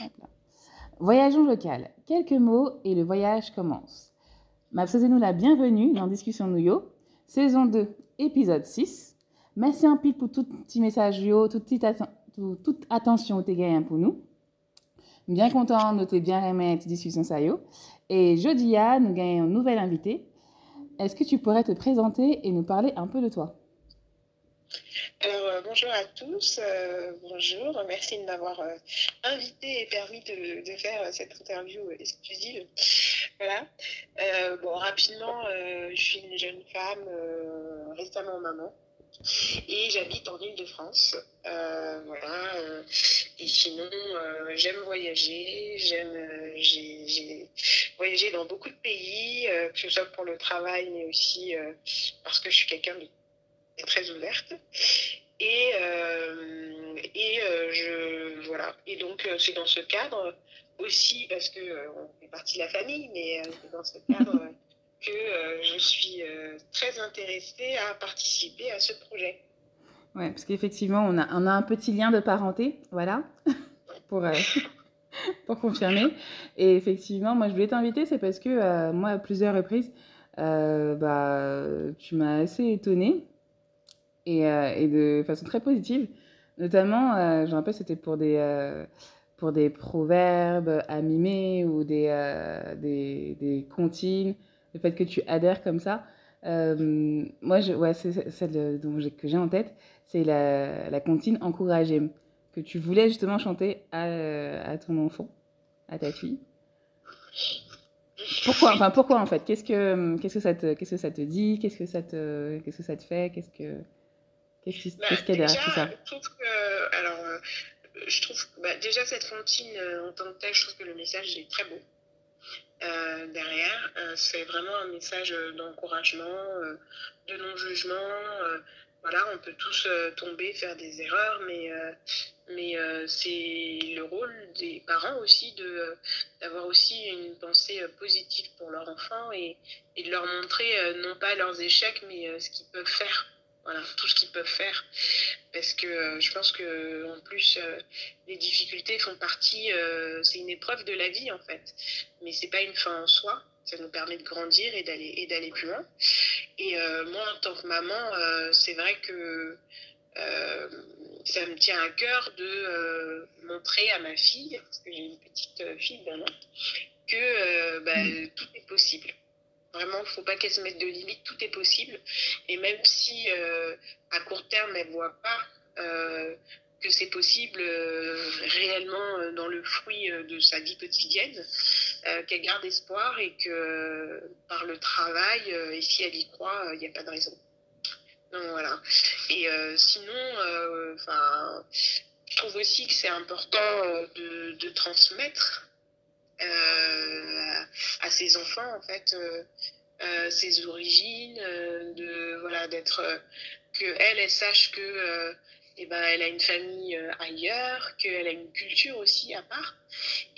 Maintenant. Voyageons local. Quelques mots et le voyage commence. Mabsosez-nous la bienvenue dans Discussion Nouyo, saison 2, épisode 6. Merci un pile pour tout petit message yo, toute, petite atten tout, toute attention au gagnant pour nous. Bien content, notez bien aimé cette discussion ça yo. Et jeudi, à, ah, nous gagnons un nouvel invité. Est-ce que tu pourrais te présenter et nous parler un peu de toi Alors, euh, bonjour à tous, euh, bonjour, merci de m'avoir euh, invité et permis de, de faire euh, cette interview exclusive. Voilà. Euh, bon, rapidement, euh, je suis une jeune femme récemment maman et j'habite en Ile-de-France. voilà. et sinon, j'aime voyager, j'aime, j'ai, voyager voyagé dans beaucoup de pays, que ce soit pour le travail, mais aussi parce que je suis quelqu'un de très ouverte. Et, euh, et euh, je, voilà. Et donc, euh, c'est dans ce cadre aussi, parce que euh, on fait partie de la famille, mais euh, c'est dans ce cadre que euh, je suis très intéressée à participer à ce projet. Oui, parce qu'effectivement, on a, on a un petit lien de parenté, voilà, pour, pour confirmer. Et effectivement, moi, je voulais t'inviter, c'est parce que moi, à plusieurs reprises, bah, tu m'as assez étonnée et, euh, et, de façon très positive. Notamment, euh, je me rappelle, c'était pour des euh, pour des proverbes à mimer ou des, euh, des, des, comptines, le fait que tu adhères comme ça. Euh, moi, je, ouais, c'est celle dont que j'ai en tête, c'est la, la, comptine encouragée que tu voulais justement chanter à, à, ton enfant, à ta fille. Pourquoi Enfin, pourquoi en fait Qu'est-ce que qu'est-ce que ça te qu'est-ce que ça te dit Qu'est-ce que ça te qu'est-ce que ça te fait Qu'est-ce que Qu'est-ce qu'il bah, qu y a derrière tout ça Je trouve que, alors, euh, je trouve bah, déjà cette Fantine euh, en tant que telle, je trouve que le message est très beau. Euh, derrière, euh, c'est vraiment un message euh, d'encouragement, euh, de non-jugement. euh voilà, on peut tous tomber, faire des erreurs, mais, euh mais c'est le rôle des parents aussi de, d'avoir aussi une pensée positive pour leur enfant et, et de leur montrer non pas leurs échecs, mais ce qu'ils peuvent faire. Voilà, tout ce qu'ils peuvent faire. Parce que euh, je pense que en plus, euh, les difficultés font partie, euh, c'est une épreuve de la vie en fait. Mais c'est pas une fin en soi. Ça nous permet de grandir et d'aller et d'aller plus loin. Et euh, moi, en tant que maman, euh, c'est vrai que euh, ça me tient à cœur de montrer à ma fille, parce que j'ai une petite fille d'un an, que bah, mm. tout est possible Vraiment, il ne faut pas qu'elle se mette de limite tout est possible. Et même si euh, à court terme, elles ne voit pas euh, que c'est possible euh, réellement euh, dans le fruit euh, de sa vie quotidienne, euh, qu'elle garde espoir et que par le travail, et si elle y croit il n'y a pas de raison. Donc voilà. Et sinon, enfin je trouve aussi que c'est important de, de transmettre Euh, à ses enfants, en fait, euh, euh, ses origines, de, voilà, d'être, que elle, elle sache que eh ben, elle a une famille ailleurs, qu'elle a une culture aussi à part,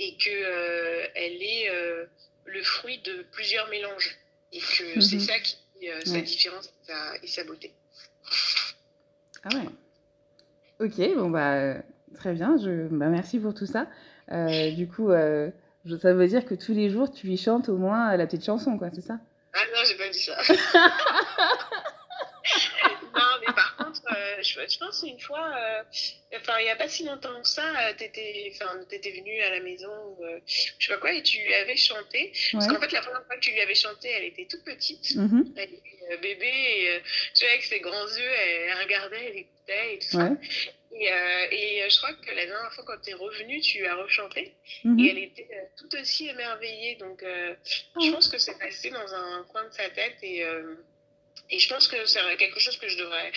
et que euh, elle est euh, le fruit de plusieurs mélanges, et que mm -hmm. c'est ça qui euh, ouais. sa différence sa, et sa beauté. Ah ouais. Ok, bon bah très bien. Je, bah, merci pour tout ça. du coup, je Ça veut dire que tous les jours, tu lui chantes au moins euh, la petite chanson, quoi, c'est ça Ah non, j'ai pas dit ça. non, mais par contre, euh, je, je, pense une fois, euh, enfin, euh, il n'y a pas si longtemps que ça, euh, tu étais, étais venue à la maison, euh, je sais pas quoi, et tu lui avais chanté. Ouais. Parce qu'en fait, la première fois que tu lui avais chanté, elle était toute petite, mm -hmm. elle était bébé, et, tu vois, avec ses grands yeux, elle regardait, elle écoutait et tout ouais. Et, euh, et, euh, je crois que la dernière fois, quand tu es revenue, tu as rechanté. Mm -hmm. Et elle était euh, tout aussi émerveillée. Donc, euh, oh. je pense que c'est passé dans un coin de sa tête. Et, euh, et je pense que c'est quelque chose que je devrais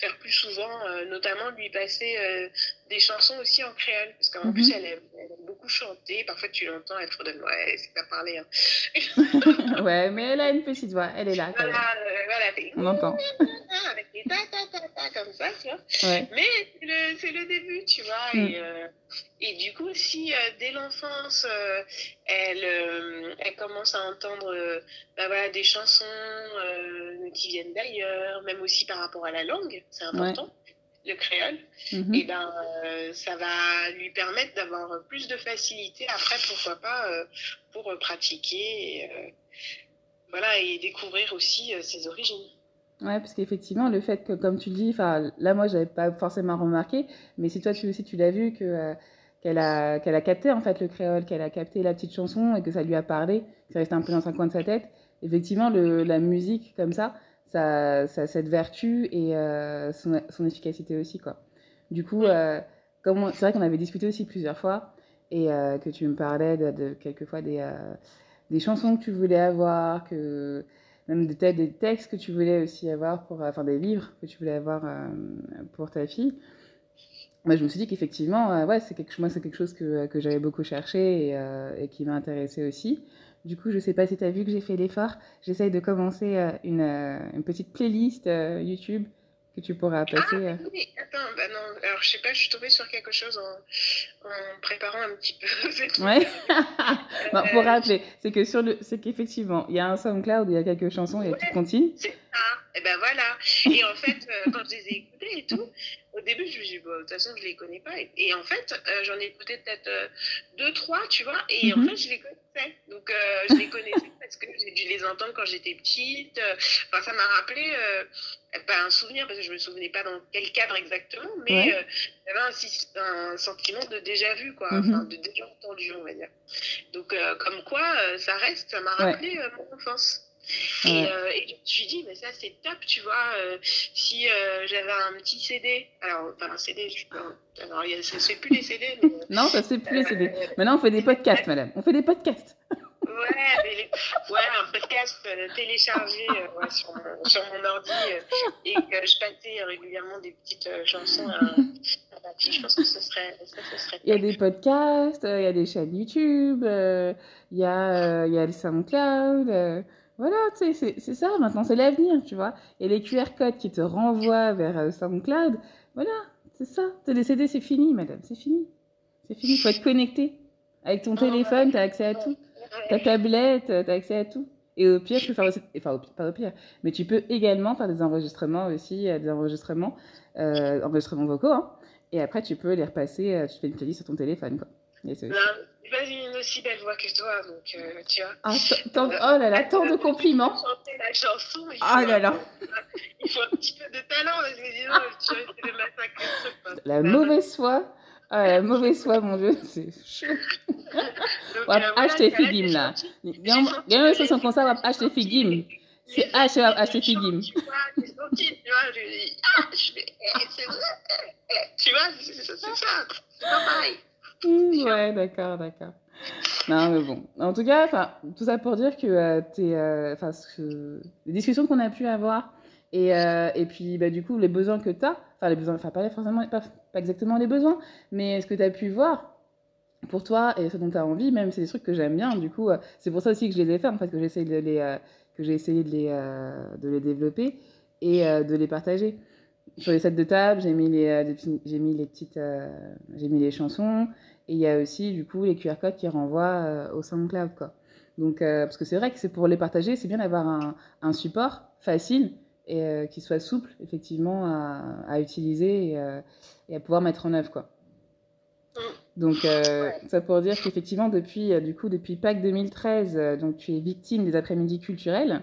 faire plus souvent, euh, notamment lui passer des chansons aussi en créole, parce qu'en mm -hmm. plus, elle aime, elle aime, beaucoup chanter. Parfois, tu l'entends, elle fredonne. Ouais, c'est pas parler. Hein. ouais, mais elle a une petite voix, elle est là. Quand voilà, même. Euh, voilà, on entend. Avec des ta ta ta ta comme ça, tu vois. Ouais. Mais c'est le, le, début, tu vois. Mm. Et, euh, et, du coup, si euh, dès l'enfance, euh, elle, euh, elle commence à entendre euh, bah, voilà, des chansons qui viennent d'ailleurs, même aussi par rapport à la langue, c'est important. Ouais. de créole. Mmh. Et eh ben, euh, ça va lui permettre d'avoir plus de facilité après, pourquoi pas, euh, pour euh, pratiquer. Et, euh, voilà, et découvrir aussi euh, ses origines. Ouais, parce qu'effectivement, le fait que, comme tu dis, là, moi, j'avais pas forcément remarqué, mais si toi tu aussi tu l'as vu que qu'elle a, qu'elle a capté en fait le créole, qu'elle a capté la petite chanson et que ça lui a parlé, que ça restait un peu dans un coin de sa tête. Effectivement, le, la musique comme ça, ça, ça, cette vertu et euh, son, son, efficacité aussi. Quoi. Du coup, euh, c'est vrai qu'on avait discuté aussi plusieurs fois et euh, que tu me parlais de, de quelquefois des, euh, des chansons que tu voulais avoir, que, même de des textes que tu voulais aussi avoir, pour, euh, enfin des livres que tu voulais avoir euh, pour ta fille. Moi, je me suis dit qu'effectivement, ouais, c'est quelque, moi, c'est quelque chose que, que j'avais beaucoup cherché et, et qui m'a intéressée aussi. Du coup, je sais pas si tu as vu que j'ai fait l'effort. J'essaye de commencer euh, une, euh, une, petite playlist euh, YouTube que tu pourras ah, passer. Ah, oui, attends, bah non, alors je sais pas, je suis tombée sur quelque chose en, en préparant un petit peu. ouais. bon, pour rappeler, c'est que sur le, c'est qu'effectivement, il y a un SoundCloud, il y a quelques chansons, il y a ouais, toutes C'est ça. Et ben voilà. Et en fait, quand je les ai écoutées et tout, au début, je me suis dit, bah, de toute façon, je ne les connais pas. Et, et en fait, euh, j'en ai écouté peut-être euh, deux, trois, tu vois, et mm -hmm. en mhm. fait, je les connaissais. Donc, euh, je les connaissais parce que j'ai dû les entendre quand j'étais petite. Enfin, ça m'a rappelé euh, bah, un souvenir, parce que je ne me souvenais pas dans quel cadre exactement, mais ouais. Euh, j'avais un, un, sentiment de déjà-vu, quoi, mm -hmm. enfin, de déjà entendu, on va dire. Donc, euh, comme quoi, ça reste, ça m'a rappelé ouais. mon enfance. Et, euh, et, je me suis dit, mais ça c'est top, tu vois, euh, si euh, j'avais un petit CD, alors, enfin un CD, je, alors y a, plus les CD. Euh, mais, non, ça ne fait plus les CD. Maintenant on fait des podcasts, madame, on fait des podcasts. Ouais, les, ouais, un podcast euh, téléchargé euh, ouais, sur, mon, sur, mon, ordi euh, et que je passais régulièrement des petites euh, chansons à, à ma fille. Je pense que ce serait. Ça, ce serait il y a des podcasts, euh, il y a des chaînes YouTube, il, y a, il y a le SoundCloud. Voilà, tu sais, c'est ça maintenant, c'est l'avenir, tu vois. Et les QR codes qui te renvoient vers euh, SoundCloud, voilà, c'est ça. te Les CD, c'est fini, madame, c'est fini. C'est fini, il faut être connecté. Avec ton téléphone, tu as accès à tout. Ta tablette, euh, tu as accès à tout. Et au pire, tu peux faire aussi, enfin, au pire, pas au pire, mais tu peux également faire des enregistrements aussi, euh, des enregistrements, euh, enregistrements vocaux, hein. Et après, tu peux les repasser, euh, tu fais une playlist sur ton téléphone, quoi. Désolée. Euh, une aussi belle voix que toi, donc euh, tu vois. Ah, tant, oh là là, tant de compliments. la chanson. Il ah faut, là là. Euh, il faut un petit peu de talent parce que sinon, tu vois, c'est le massacre. la mauvaise foi. Ah, la mauvaise foi, mon dieu, c'est chaud. Euh, acheter Figim là. Gagne 60 ça va acheter Figim. C'est H, acheter Figim. Tu vois, c'est sorti, tu vois, je dis, ah, je vais, eh, eh, c'est vrai. Eh, tu vois, c'est ça, c'est pas pareil. ouais, d'accord, d'accord. Non, mais bon. En tout cas, tout ça pour dire que euh, t'es, euh, ce... les discussions qu'on a pu avoir et, euh, et puis bah, du coup, les besoins que tu as, enfin, les besoins, enfin, pas forcément, pas, pas, exactement les besoins, mais ce que tu as pu voir pour toi et ce dont tu as envie, même, c'est des trucs que j'aime bien. Du coup, euh, c'est pour ça aussi que je les ai fait, en fait, que j'ai essayé de les, euh, que j'ai essayé de les, euh, de les développer et de les partager sur les sets de table, j'ai mis les, euh, j'ai mis les petites, euh, j'ai mis les chansons, Et il y a aussi, du coup, les QR codes qui renvoient euh, au SoundCloud, quoi. Donc, euh, parce que c'est vrai que c'est pour les partager, c'est bien d'avoir un, un, support facile et euh, qui soit souple, effectivement, à, à utiliser et, et, à pouvoir mettre en œuvre, quoi. Mm. Donc, euh, ouais. ça pour dire qu'effectivement, depuis, euh, du coup, depuis Pâques 2013, euh, donc, tu es victime des après-midi culturels.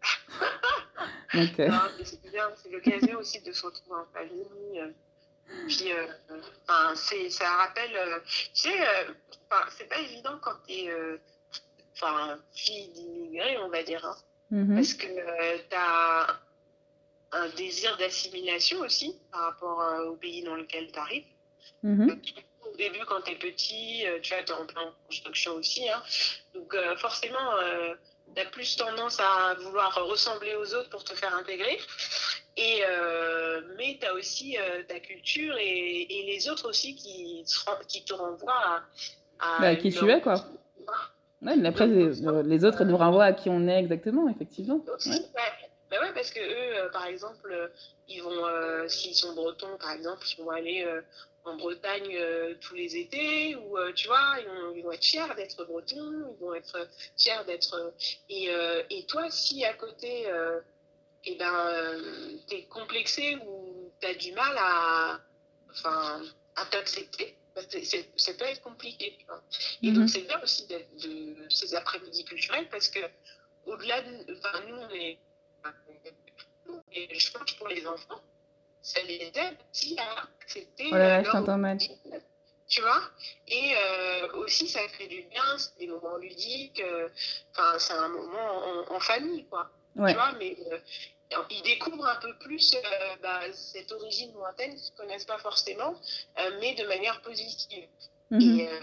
donc, c'est bien, c'est l'occasion aussi de se retrouver en famille, Puis, euh, ben, c'est, ça rappelle, euh, tu sais, euh, c'est pas évident quand t'es, euh, enfin, fille d'immigrés, on va dire, hein, mm-hmm. parce que euh, t'as un désir d'assimilation aussi par rapport euh, au pays dans lequel t'arrives. Mm-hmm. Donc, au début, quand t'es petit, tu vois, t'es en plein construction aussi, hein, donc forcément, tu as plus tendance à vouloir ressembler aux autres pour te faire intégrer. Et, euh, mais tu as aussi euh, ta culture et, et, les autres aussi qui, qui te renvoient à. à bah, qui tu es, quoi. Ouais, mais après, les, euh, les, autres nous renvoient à qui on est exactement, effectivement. Ouais. ouais. Bah ouais parce que eux, euh, par exemple, ils vont, euh, s'ils sont bretons, par exemple, ils vont aller euh, en Bretagne euh, tous les étés, ou euh, tu vois, ils vont, ils vont être fiers d'être bretons, ils vont être fiers d'être. Et, euh, et, toi, si à côté, eh ben, t'es complexé ou t'as du mal à, enfin, à t'accepter, bah, ça peut être compliqué. Tu vois. Et mm -hmm. donc, c'est bien aussi de, de ces après-midi culturels parce que, au-delà de. Enfin, nous, on est. Et je pense pour les enfants, c'est les elle qui a accepté. Oh là là, je t'entends Tu vois Et euh, aussi, ça fait du bien, c'est des moments ludiques, euh, enfin, euh, c'est un moment en, en famille, quoi. Ouais. Tu vois, mais euh, ils découvrent un peu plus euh bah, cette origine lointaine qu'ils ne connaissent pas forcément, euh mais de manière positive. Mm -hmm. Et, euh,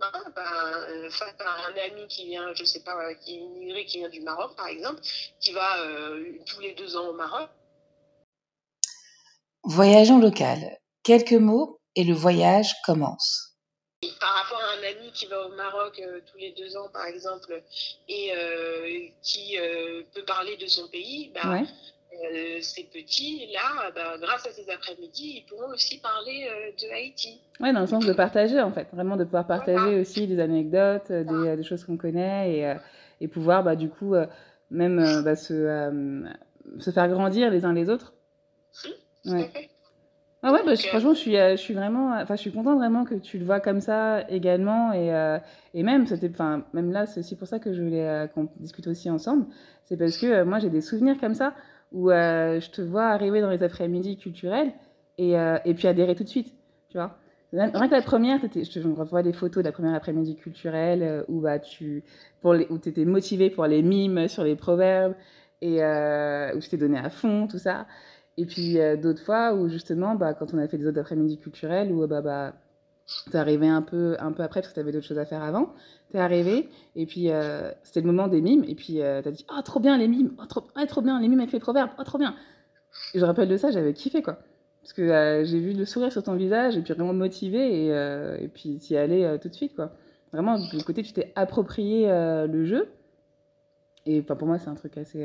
bah, bah, euh, face à un ami qui vient, je sais pas, qui est immigré, qui vient du Maroc par exemple, qui va tous les deux ans au Maroc, Voyageons local. Quelques mots et le voyage commence par rapport à un ami qui va au Maroc euh, tous les deux ans, par exemple, et euh, qui euh, peut parler de son pays, bah, ouais. Euh, ces petits-là, bah, grâce à ces après-midi, ils pourront aussi parler euh, de Haïti. Oui, dans le sens de partager, en fait. Vraiment de pouvoir partager voilà. aussi des anecdotes, euh, voilà. des, des, choses qu'on connaît, et, et pouvoir, bah, du coup, même bah, se, se, faire grandir les uns les autres. Ouais. Ah ouais, bah, Donc, je, euh, franchement, je suis, euh, je suis vraiment, euh, enfin, je suis contente vraiment que tu le vois comme ça également, et, euh, et même, c'était, enfin, même là, c'est aussi pour ça que je voulais euh, qu'on discute aussi ensemble, c'est parce que euh, moi, j'ai des souvenirs comme ça où je te vois arriver dans les après-midi culturels et, et, puis adhérer tout de suite, tu vois. Rien que la première, je te revois des photos de la première après-midi culturelle où bah, tu pour les, où étais motivée pour les mimes sur les proverbes et où je t'ai donné à fond, tout ça. Et puis euh, d'autres fois où justement, bah, quand on a fait des autres après-midi culturels, où bah, bah, t'es arrivé un peu, un peu après parce que t'avais d'autres choses à faire avant, t'es arrivé et puis euh, c'était le moment des mimes et puis euh, t'as dit « Oh, trop bien les mimes oh trop, oh, trop bien les mimes avec les proverbes Oh, trop bien !» Et je rappelle de ça, j'avais kiffé quoi. Parce que euh, j'ai vu le sourire sur ton visage et puis vraiment motivé et, euh, et puis t'y allais euh, tout de suite quoi. Vraiment, du côté tu t'es approprié le jeu. Et pour moi, c'est un truc assez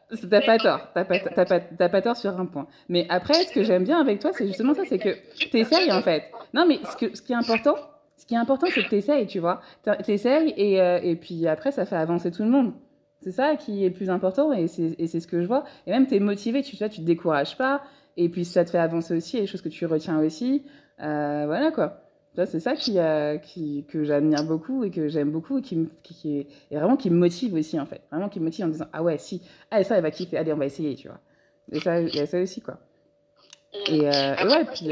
T'as pas tort, t'as pas, t'as pas, t'as pas tort sur un point. Mais après, ce que j'aime bien avec toi, c'est justement ça, c'est que t'essayes en fait. Non, mais ce, que, ce qui est important, ce qui est important, c'est que t'essayes, tu vois. T'essayes et, euh, et puis après, ça fait avancer tout le monde. C'est ça qui est plus important et c'est, et c'est ce que je vois. Et même, t'es motivé, tu, tu, vois, tu te décourages pas. Et puis, ça te fait avancer aussi, et les choses que tu retiens aussi. Euh, voilà quoi. c'est ça qui, euh, qui, que j'admire beaucoup et que j'aime beaucoup et qui, me, qui, et vraiment qui me motive aussi, en fait. Vraiment qui me motive en disant, ah ouais, si, ah, ça, elle va kiffer, allez, on va essayer, tu vois. Et ça, il y a ça aussi, quoi. Euh, et, euh, Après, ouais, moi, puis.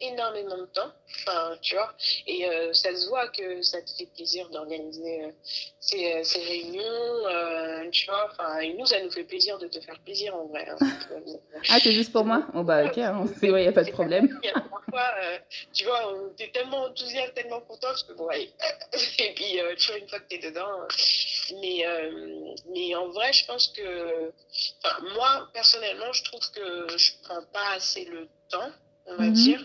énormément de temps, enfin, tu vois, et euh, ça se voit que ça te fait plaisir d'organiser euh, ces, euh, ces, réunions, euh, tu vois, enfin, et nous, ça nous fait plaisir de te faire plaisir en vrai. Hein. Euh, ah, c'est juste pour moi Oh bah ok, il n'y a pas de problème. Il y euh, tu vois, t'es tellement enthousiaste, tellement contente que bon, allez, et puis tu vois, une fois que t'es dedans, mais, mais en vrai, je pense que, moi, personnellement, je trouve que je prends pas assez le temps on va mm -hmm. dire.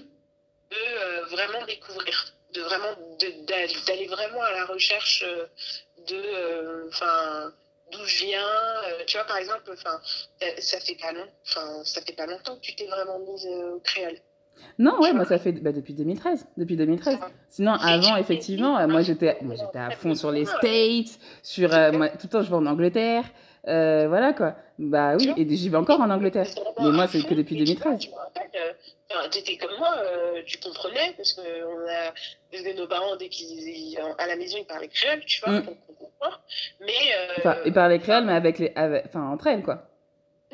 de euh, vraiment découvrir, de vraiment d'aller vraiment à la recherche euh, de, euh, enfin d'où je viens. tu vois, par exemple, enfin, ça fait pas long, enfin, ça fait pas longtemps que tu t'es vraiment mise au créole. Non, ouais, moi ça fait bah, depuis 2013, depuis 2013. Sinon, avant, effectivement, moi j'étais, moi j'étais à fond sur les States, sur euh, moi, tout le temps je vais en Angleterre, euh, voilà quoi. Bah oui, et j'y vais encore en Angleterre. Mais moi c'est que depuis 2013. Enfin, t'étais comme moi, euh, tu comprenais, parce que on a, parce que nos parents, dès qu'ils, à la maison, ils parlaient créole, tu vois, mm. donc on comprend. Mais. Euh, enfin, ils parlaient créole, mais avec les, avec, enfin, entre elles, quoi.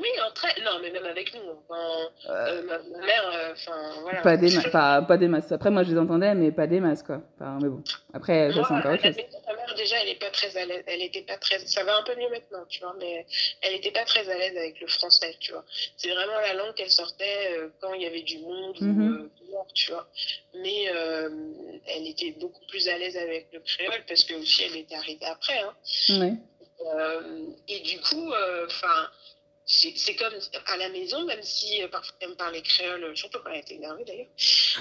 Oui, en très... non, mais même avec nous. Enfin, euh... Euh, ma, mère, euh, enfin, euh, voilà. Pas des, ma... pas des masques Après, moi, je les entendais, mais pas des masques quoi. Enfin, mais bon. Après, moi, ça, c'est encore autre chose. Ma mère, déjà, elle est pas très à l'aise. Elle était pas très... Ça va un peu mieux maintenant, tu vois, mais elle était pas très à l'aise avec le français, tu vois. C'est vraiment la langue qu'elle sortait euh, quand il y avait du monde mm-hmm. ou mhm. euh, dehors, tu vois. Mais elle était beaucoup plus à l'aise avec le créole parce que aussi, elle était arrivée après, hein. Oui. et du coup, enfin c'est comme à la maison, même si euh, parfois elle me parlait créole, surtout quand elle était énervée d'ailleurs.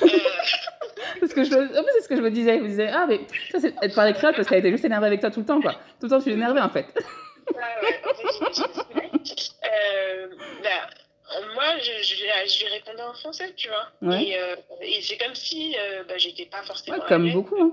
Euh... que je, en plus, c'est ce que je me disais. Je me disais, ah, mais ça, c'est, elle te parlait créole parce qu'elle était juste énervée avec toi tout le temps, quoi. Tout le temps, tu énervée en fait. ah ouais, en fait, euh, bah, moi, je, je, lui répondais en français, tu vois. Ouais. Et, euh, et c'est comme si euh, bah, j'étais pas forcément. Ouais, comme beaucoup, hein.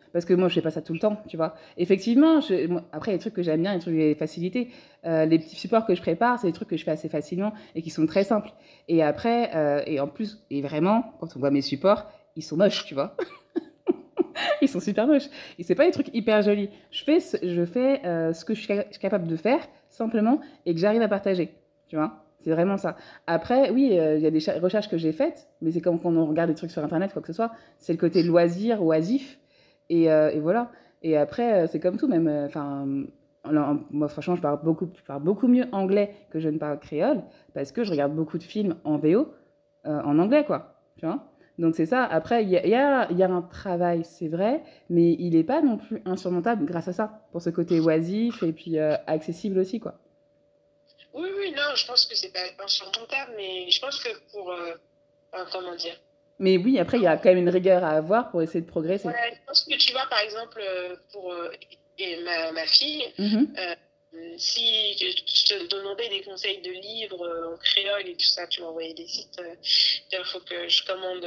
Parce que moi, je fais pas ça tout le temps, tu vois. Effectivement, je, moi, après, les trucs que j'aime bien, les trucs les facilités, euh, les petits supports que je prépare, c'est des trucs que je fais assez facilement et qui sont très simples. Et après, euh, et en plus, et vraiment, quand on voit mes supports, ils sont moches, tu vois. ils sont super moches. Et c'est pas des trucs hyper jolis. Je fais ce, je fais, euh, ce que je suis, je suis capable de faire, simplement, et que j'arrive à partager, tu vois. C'est vraiment ça. Après, oui, euh, il euh, y a des recherches que j'ai faites, mais c'est comme quand on regarde des trucs sur Internet, quoi que ce soit. C'est le côté loisir, oisif, Et, euh, et voilà. Et après, euh, c'est comme tout, même. Euh, enfin, moi, franchement, je parle, beaucoup, je parle beaucoup mieux anglais que je ne parle créole parce que je regarde beaucoup de films en VO, euh, en anglais, quoi. Tu vois Donc, c'est ça. Après, il y a, y, a, y a, un travail, c'est vrai, mais il n'est pas non plus insurmontable grâce à ça, pour ce côté oisif et puis euh, accessible aussi, quoi. Oui, oui, non, je pense que c'est pas insurmontable, mais je pense que pour. Euh, comment dire Mais oui, après, il y a quand même une rigueur à avoir pour essayer de progresser. Ouais, je pense que tu vois, par exemple, euh, pour euh, et ma, ma, fille, mm -hmm. euh, si je te demandais des conseils de livres euh, en créole et tout ça, tu m'envoyais des sites, il faut que je commande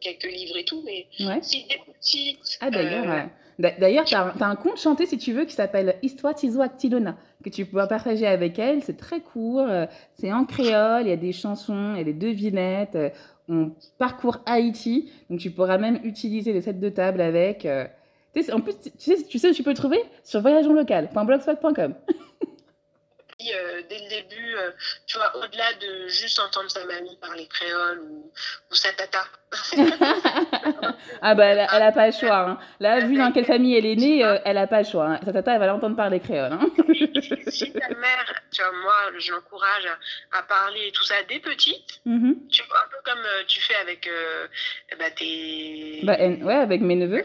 quelques livres et tout, mais ouais. si des petits... Ah d'ailleurs, ouais. D'ailleurs, tu as, as, un compte chanté, si tu veux, qui s'appelle Histoire Tizo Actilona, que tu peux partager avec elle. C'est très court, c'est en créole, il y a des chansons, il y a des devinettes. on parcourt Haïti. Donc, tu pourras même utiliser les sets de table avec. Euh... en plus, tu sais, tu sais, tu peux le trouver sur voyageonlocal.blogspot.com. euh, dès le début, euh, tu vois, au-delà de juste entendre sa mamie parler créole ou, ou sa tata. ah bah elle, elle a pas le choix. Hein. Là, vu dans quelle famille elle est née, euh, elle a pas le choix. Hein. Sa tata, elle va l'entendre parler créole. Hein. si ta mère, tu vois, moi, je l'encourage à, à, parler tout ça dès petite. Mm -hmm. Tu vois, un peu comme euh, tu fais avec euh, bah, tes... Bah, elle, ouais, avec mes neveux.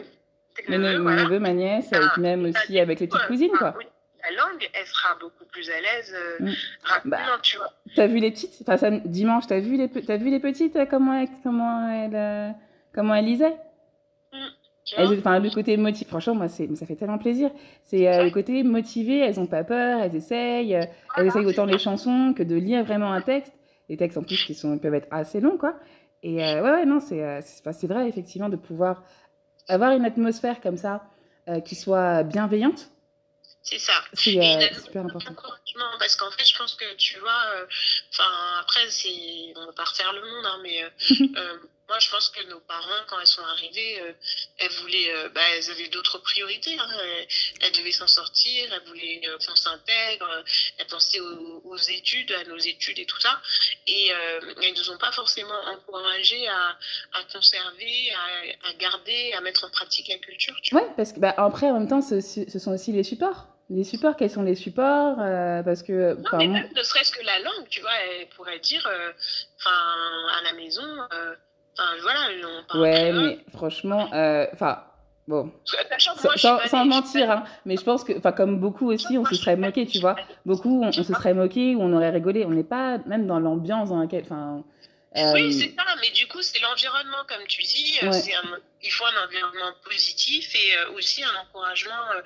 Mes, neveux, voilà. mes neveux ma nièce, ah, et même aussi avec les petites cousines, ah, quoi. Oui. la langue, elle sera beaucoup plus à l'aise euh, mmh. rapidement, bah, tu vois. T'as vu les petites Enfin, ça, dimanche, t'as vu, les, as vu les petites euh, Comment elles comment elle, euh, comment elle lisait mmh. Enfin, le côté motivé, franchement, moi, ça fait tellement plaisir. C'est euh, le côté motivé, elles n'ont pas peur, elles essayent, euh, ah elles essayent autant les chansons que de lire vraiment un texte. Les textes en plus qui sont, peuvent être assez longs, quoi. Et euh, ouais, ouais, non, c'est euh, vrai, effectivement, de pouvoir avoir une atmosphère comme ça euh, qui soit bienveillante, C'est ça. Euh, c'est super important. Parce qu'en fait, je pense que tu vois, euh, enfin, euh, après, c'est, on va pas refaire le monde, hein, mais euh, euh, moi, je pense que nos parents, quand elles sont arrivées, euh, elles voulaient, bah, elles avaient d'autres priorités. Hein, elles, elles, devaient s'en sortir, elles voulaient qu'on s'intègre, elles pensaient aux, aux, études, à nos études et tout ça. Et elles nous ont pas forcément encouragées à, à conserver, à, à, garder, à mettre en pratique la culture. oui parce que, bah, après, en même temps, ce, ce sont aussi les supports. les supports, quels sont les supports euh, Parce que. Non, mais même ne serait-ce que la langue, tu vois, elle pourrait dire, euh, enfin, euh, à la maison, euh, enfin, voilà, on parle. Ouais, mais franchement, euh, enfin. Bon, S moi, sans, sans mentir, hein, mais je pense que, enfin, comme beaucoup aussi, on se serait moqué, tu vois. Beaucoup, on, on se serait moqué ou on aurait rigolé. On n'est pas même dans l'ambiance dans laquelle, enfin, Euh... Oui, c'est ça, mais du coup, c'est l'environnement, comme tu dis. Euh, ouais. Un, il faut un environnement positif et euh, aussi un encouragement. Euh,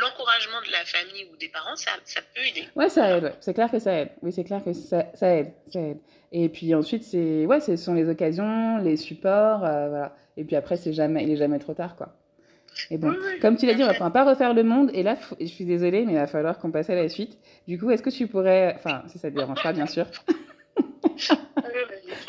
l'encouragement de la famille ou des parents, ça, ça peut aider. Oui, ça aide, ouais. c'est clair que ça aide. Oui, c'est clair que ça, ça, aide, ça aide. Et puis ensuite, c'est, ouais, ce sont les occasions, les supports, euh, voilà. Et puis après, est jamais, il n'est jamais trop tard, quoi. Et bon, oui, oui, comme tu l'as dit, on ne va pas refaire le monde. Et là, je suis désolée, mais il va falloir qu'on passe à la suite. Du coup, est-ce que tu pourrais, enfin, si ça te dérange pas, bien sûr.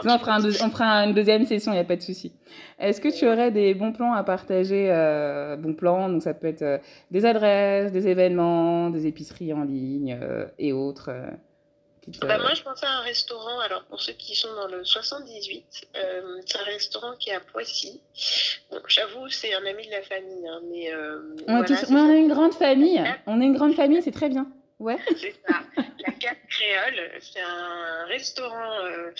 non, on fera, un on fera une deuxième session, il n'y a pas de souci. Est-ce que tu aurais des bons plans à partager euh, Bons plans, donc ça peut être euh, des adresses, des événements, des épiceries en ligne euh, et autres. Euh, te... Bah moi, je pensais à un restaurant. Alors, pour ceux qui sont dans le 78, euh, c'est un restaurant qui est à Poissy. Bon, j'avoue, c'est un ami de la famille. Hein, mais, euh, on, voilà, tous... ouais, on, est une grande famille. Ah. On est une grande famille, c'est très bien. Ouais. C'est ça. La Cave Créole, c'est un restaurant euh,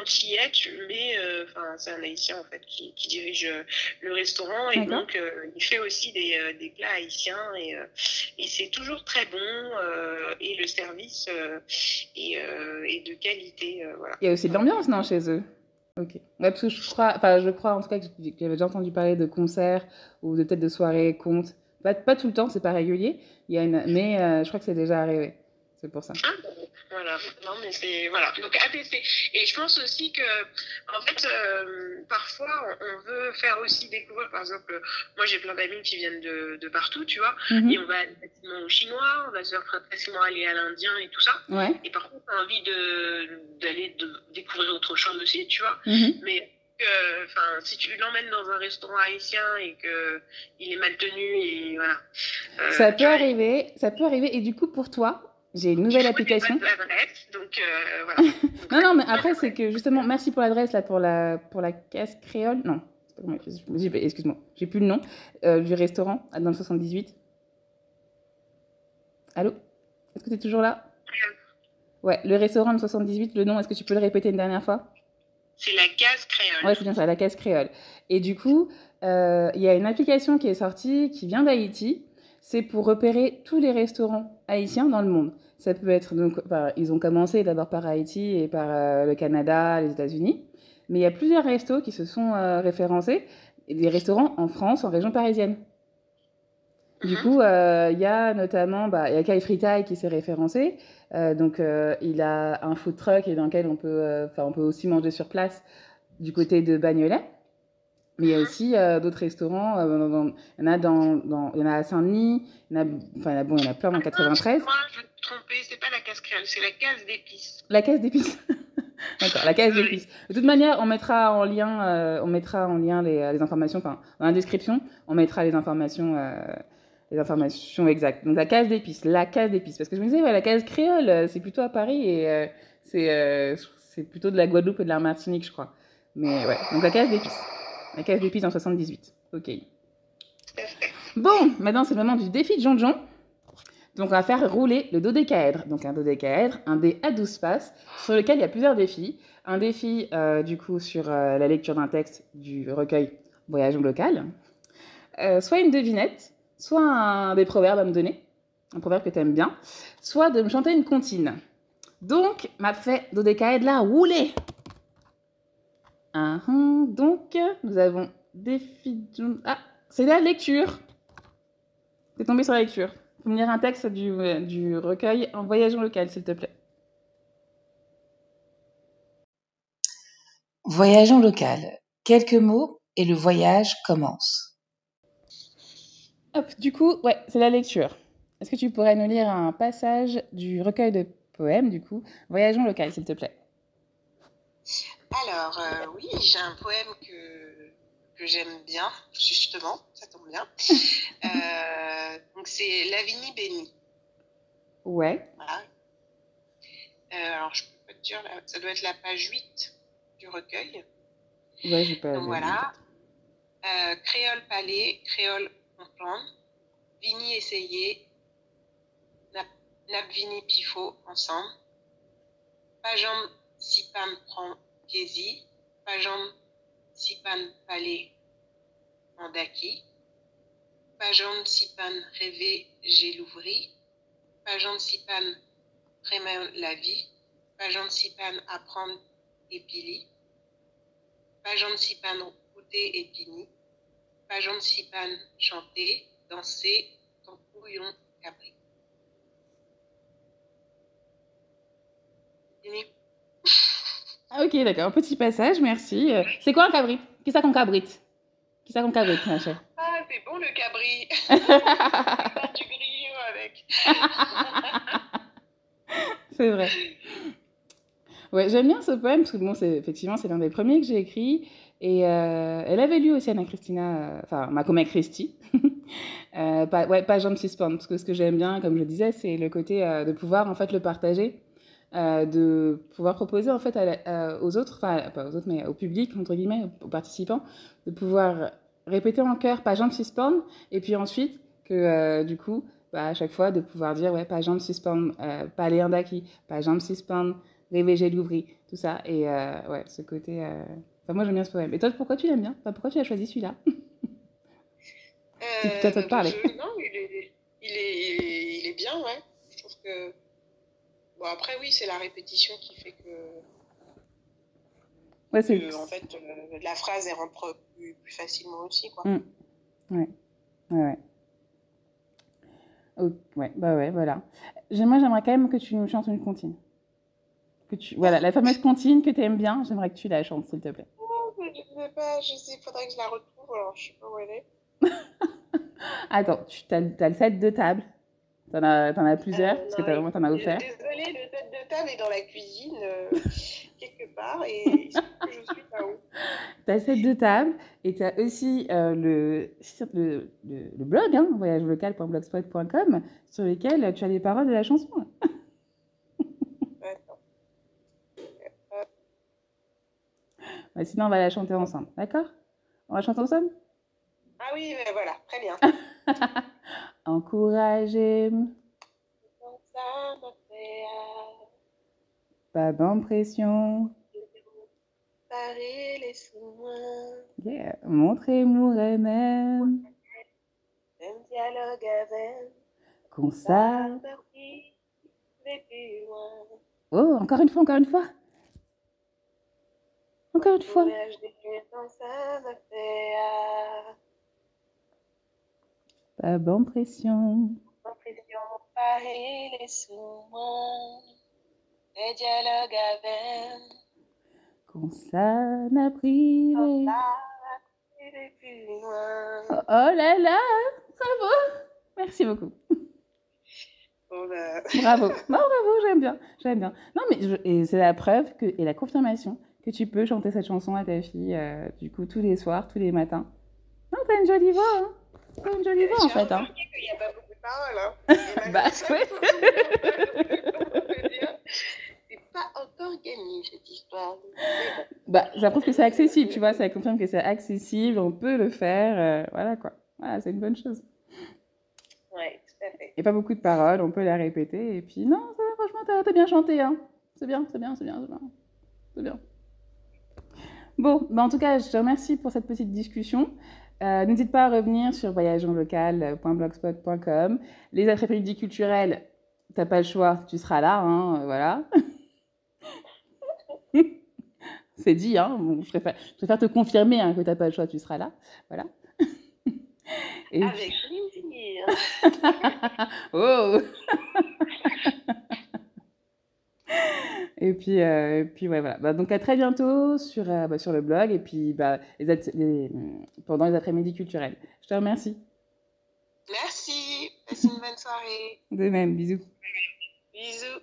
antillais, mais euh, c'est un haïtien en fait qui, qui dirige euh, le restaurant et donc euh, il fait aussi des, euh, des plats haïtiens et, euh, et c'est toujours très bon et le service est, est, de qualité. Voilà. Il y a aussi de l'ambiance, non, chez eux Ok. Ouais, parce que je crois, enfin, je crois en tout cas que j'avais déjà entendu parler de concerts ou de peut de soirée contes Pas, pas tout le temps, c'est pas régulier, il y a une... mais euh, je crois que c'est déjà arrivé. C'est pour ça. ah Voilà, non, mais c'est. Voilà, donc APP. Et je pense aussi que, en fait, euh, parfois, on veut faire aussi découvrir, par exemple, euh, moi j'ai plein d'amis qui viennent de, de, partout, tu vois, mm -hmm. et on va aller facilement au chinois, on va se faire facilement aller à l'indien et tout ça. Ouais. Et par contre, on a envie d'aller découvrir autre chose aussi, tu vois. Mm -hmm. Mais que, enfin, si tu l'emmènes dans un restaurant haïtien et que il est mal tenu et voilà. Euh, ça peut arriver, ça peut arriver. Et du coup, pour toi, j'ai une nouvelle application. donc euh, voilà. non, non, mais après c'est que justement, merci pour l'adresse là pour la pour la caisse créole. Non, excuse-moi, j'ai plus le nom euh, du restaurant ah, dans le 78. Allô, est-ce que tu es toujours là? Ouais, le restaurant le 78, le nom, est-ce que tu peux le répéter une dernière fois C'est la case créole. Ouais, c'est bien ça, la case créole. Et du coup, euh, il euh, y a une application qui est sortie qui vient d'Haïti. C'est pour repérer tous les restaurants haïtiens dans le monde. Ça peut être donc, enfin, ils ont commencé d'abord par Haïti et par euh, le Canada, les États-Unis. Mais il y a plusieurs restos qui se sont euh, référencés, des restaurants en France, en région parisienne. Mm-hmm. Du coup, euh, il y a notamment, bah, il y a Kai Fritai qui s'est référencé. Euh, donc, euh, il a un food truck et dans lequel on peut, on peut aussi manger sur place du côté de Bagnolet. Mais il y a mm-hmm. aussi euh, d'autres restaurants. Euh, dans, dans, y en a dans, y en a à Saint-Denis. y en a, enfin, il y en a, bon, il y en a plein dans 93. Moi, je me trompais. C'est pas la casse créole, c'est la case d'épices. La case d'épices. D'accord, la case d'épices. De toute manière, on mettra en lien, euh, on mettra en lien les, les informations. Enfin, dans la description, on mettra les informations les informations exactes. Donc la case d'épices, la case d'épices. Parce que je me disais, ouais, la case créole, euh, c'est plutôt à Paris et euh, c'est, euh, c'est plutôt de la Guadeloupe et de la Martinique, je crois. Mais ouais, donc la case d'épices. La case d'épices en 78. Ok. Bon, maintenant c'est le moment du défi de John John. Donc on va faire rouler le dodécaèdre. Donc un dodécaèdre, un dé à 12 faces, sur lequel il y a plusieurs défis. Un défi euh, du coup sur euh, la lecture d'un texte du recueil Voyage local. Euh, soit une devinette, soit un, des proverbes à me donner, un proverbe que tu aimes bien, soit de me chanter une comptine. Donc, m'a fait dodécaèdre la roulée. Ah, hum, donc, nous avons des Ah, c'est la lecture. T'es tombé sur la lecture. Faut me lire un texte du, du recueil en voyageant local, s'il te plaît. Voyageons local. Quelques mots et le voyage commence. Hop, du coup, ouais, c'est la lecture. Est-ce que tu pourrais nous lire un passage du recueil de poèmes, du coup, Voyageons local, s'il te plaît Alors, euh, oui, j'ai un poème que, que j'aime bien, justement, ça tombe bien. euh, donc, c'est Lavini Béni. Ouais. Voilà. Euh, alors, je peux te dire, ça doit être la page 8 du recueil. Ouais, j'ai pas. Donc, voilà. Euh, créole Palais, Créole ensemble. Vini Essayé, Nabvini Pifo ensemble. Pajam Sipam Prankesi, Pajam Sipan Palais Mandaki, Pajam Sipan Rêvé Gélouvri, Pajam Sipan Prémain la vie, Pajam Sipan Apprendre Épili, Pajam Sipan Routé Épini, Pajon Chipan chantait, dansait, ton couillon cabré. Ah, ok, d'accord. Petit passage, merci. Euh, c'est quoi un cabri, Qui ça qu'on cabrite, Qui ça qu'on cabrit, ma chère Ah, c'est bon le cabri. du grillon avec. c'est vrai. Ouais, j'aime bien ce poème parce que bon, c'est effectivement c'est l'un des premiers que j'ai écrit. Et euh, elle avait lu aussi Anna Christina, euh, enfin Macomé Christie, euh, pas, ouais, pas Jump Suspense, parce que ce que j'aime bien, comme je disais, c'est le côté euh, de pouvoir en fait le partager, euh, de pouvoir proposer en fait à la, euh, aux autres, enfin pas aux autres, mais au public, entre guillemets, aux participants, de pouvoir répéter en chœur pas Jump Suspense, et puis ensuite que du coup, bah, à chaque fois, de pouvoir dire ouais, pas Jump Suspense, pas Léandaki, pas Jump Suspense, Réveillez l'ouvri, tout ça. Et ouais, ce côté Enfin, moi, j'aime bien ce poème. Et toi, pourquoi tu l'aimes bien enfin, Pourquoi tu as choisi celui-là euh, tu as peut-être te parler. non, il est, il est, il, est, il est bien, ouais. Je trouve que. Bon, après, oui, c'est la répétition qui fait que. Ouais, c'est. en fait, euh, la phrase, elle rentre plus, plus facilement aussi, quoi. Mmh. Ouais. Ouais, ouais. Oh, ouais, bah ouais, voilà. J'aimerais, j'aimerais quand même que tu nous chantes une comptine. que tu... Voilà, la fameuse comptine que tu aimes bien, j'aimerais que tu la chantes, s'il te plaît. Oh, mais je ne sais pas, je sais, faudrait que je la retrouve, alors je sais pas où elle est. Attends, tu t as, t as, le set de table T'en as, en as plusieurs euh, Parce non, que as, vraiment, t'en as offert. Désolée, le set de table est dans la cuisine, euh, quelque part, et je suis là-haut. as- le set de table, et as- aussi euh, le, le, le, le, blog, hein, voyagelocal.blogspot.com, sur lequel tu as les paroles de la chanson. Mais sinon, on va la chanter ensemble, d'accord On va chanter ensemble Ah oui, voilà, très bien. Pas d'impression. Yeah. même. Un dialogue avec. Oh, encore une fois, encore une fois. Encore une fois. Euh, Pas bon pression. Paris, les soins, dialogues avec. Qu'on s'en a pris. Oh, oh là là, bravo. Merci beaucoup. Oh Bravo. Non, bravo, j'aime bien. J'aime bien. Non, mais je c'est la preuve que, et la confirmation que tu peux chanter cette chanson à ta fille, euh, du coup, tous les soirs, tous les matins. Non, t'as une jolie voix, hein T'as une jolie voix, en fait. Hein. Il n'y a pas beaucoup de paroles, hein. bah, ouais. c'est pas encore gagné, cette histoire. Bah, ça prouve que c'est accessible, tu vois, ça confirme que c'est accessible, on peut le faire, euh, voilà, quoi. Voilà, c'est une bonne chose. Ouais, tout à fait. Et pas beaucoup de paroles, on peut la répéter, et puis, non, ça, franchement, t'as bien chanté, hein. C'est bien, c'est bien, c'est bien, c'est bien. C'est bien. Bon, bah en tout cas, je te remercie pour cette petite discussion. Euh, N'hésite pas à revenir sur voyageonlocal.blogspot.com. Les après-midi culturelles, t'as pas le choix, tu seras là, hein, euh, voilà. C'est dit, hein, bon, je, préfère, je, préfère, te confirmer hein, que t'as pas le choix, tu seras là, voilà. Et Avec plaisir. oh et puis, euh, et puis ouais, voilà. Bah, donc à très bientôt sur, euh, bah, sur le blog et puis bah, les les, pendant les après-midi culturels. Je te remercie. Merci. Passe une bonne soirée. De même. Bisous. Bisous.